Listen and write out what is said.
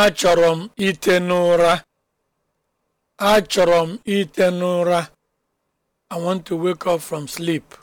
Achọrọ m ite n'ụra. Achọrọ m ite n'ụra. I want to wake up from sleep.